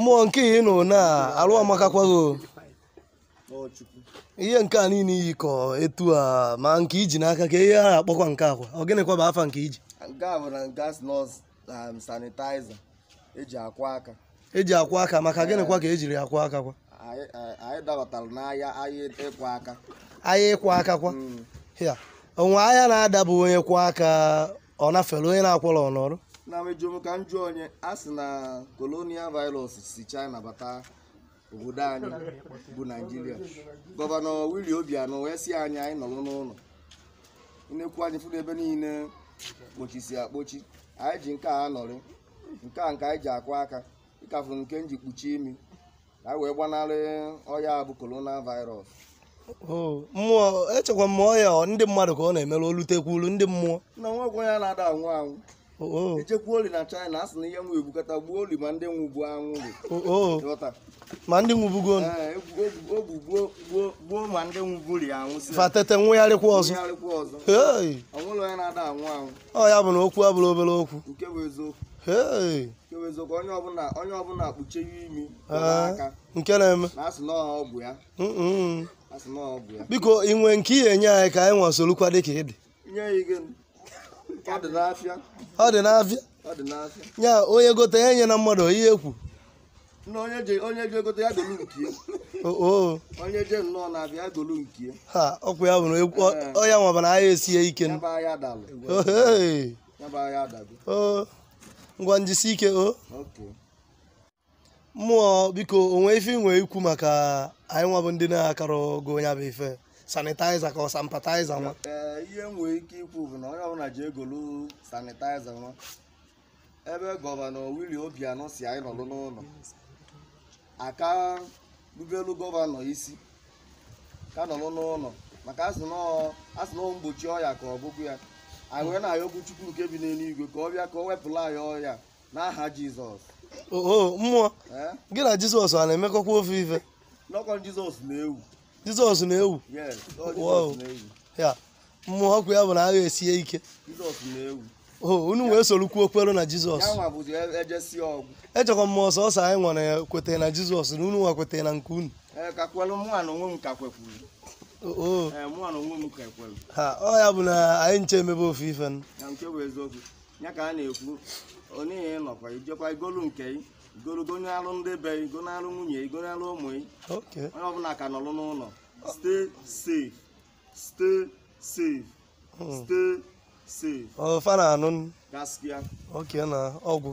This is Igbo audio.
mmụọ nke ihe nọ na alụ amakakwago ihe nke a niile iyi ka etu a ma nke iji n'aka ka ihe a akpọkwa nke akwa ọ gịnịkwa bụ afa nke iji eji um, e akwa e aka maka gịnịkwa ka ejiri akwa aka kwa ahịa ịkwa aka kwa hmm. onwe ahịa na adabụ onye kwa aka ọ nafere onye na-akwọrọ ọnọrụ na mejụm ka m jụọ onye a sị na kolonial virus si china bata obodo anyị bụ naijiria gọvanọ wili obianọ wee si anyị anyị nọrọ n'ụlọ nnekwu anyị fụrụ ebe niile kpochisi akpochi anyị ji nke a nọrị nke a nke anyị ji akwa aka ịkafụ nke m ji kpuchie imi ka anyị wee gbanarị ọya bụ kolonial virus mmụọ echekwa m ọya ndị mmadụ ka ọ na-emerụ olutekwuru ndị mmụọ na nwa ya na-ada anwụ anwụ echekwuo oli na China asị na ihe nwa ebukata gbuo oli ma ndị nwụgbu anwụli ma ndị nwụbugo gbuo ma ndị nwụburi anwụ fatete nwụgharịkwa ọzọ ọnwụlụ onye na-ada anwụ anwụ ọ ya bụ na okwu abụrụ obere okwu nke bụ eziokwu eziokwu onye ọbụla onye ọbụla kpuchie imi nke na-eme biko ị nwee nke ị ga-enye anyị ka anyị nwa soro kwa dị ka ị dị ọ dị n'afịa ọ ya onye gote ya nye na mmadụ ihe ekwu na onye ya dolu je nnọọ na-abịa ya nke ọkwa ya bụrụ ekwu ọya eh. nwaba na esi ya ike ngwa njisi ike o mmụọ biko onwe ife inwe ikwu maka anyị nwabụ ndị na-akara ogo onye bụ ife sanitaiza ka ọ sampataiza nwa ihe m nwere ike ikwu bụ na onye ọbụla ji egolu sanitaiza nwa ebe gọvanọ wili obianọ si anyị nọlụ n'ụlọ aka rubelu gọvanọ isi ka nọlụ n'ụlọ maka asị na mgbochi ọya ka ọ bụkwu ya anyị wee na-ayọ okwu chukwu nke bi n'eluigwe ka ọ bịa ka ọ wepụla anyị ọya n'aha jizọs oo mmụọ gị na jizọs a na-emekọkwa ofe ife nọkọ jizọs na-ewu jizọs na-ewu ya mmụọ ọkụ ya bụ na agha esie ike oh, unu wee sorokwu okpere na jizọs e, e echekwa m ọsọ ọsọ anyị nwere kwetara na jizọs na unu nwa kwetara na nke unu ọ ya bụ na anyị nche emebe ofe ife ya ka a na-ekwu onye nọkwa ijekwa igolu nke i igologo onye ndị be ị go alụ nwunye ị go ụmụ ị onye ọbụla ka nọlụ n'ụlọ stay safe stay safe hmm. stay safe gaskiya oke na ọgwụ